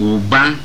ụ̀ba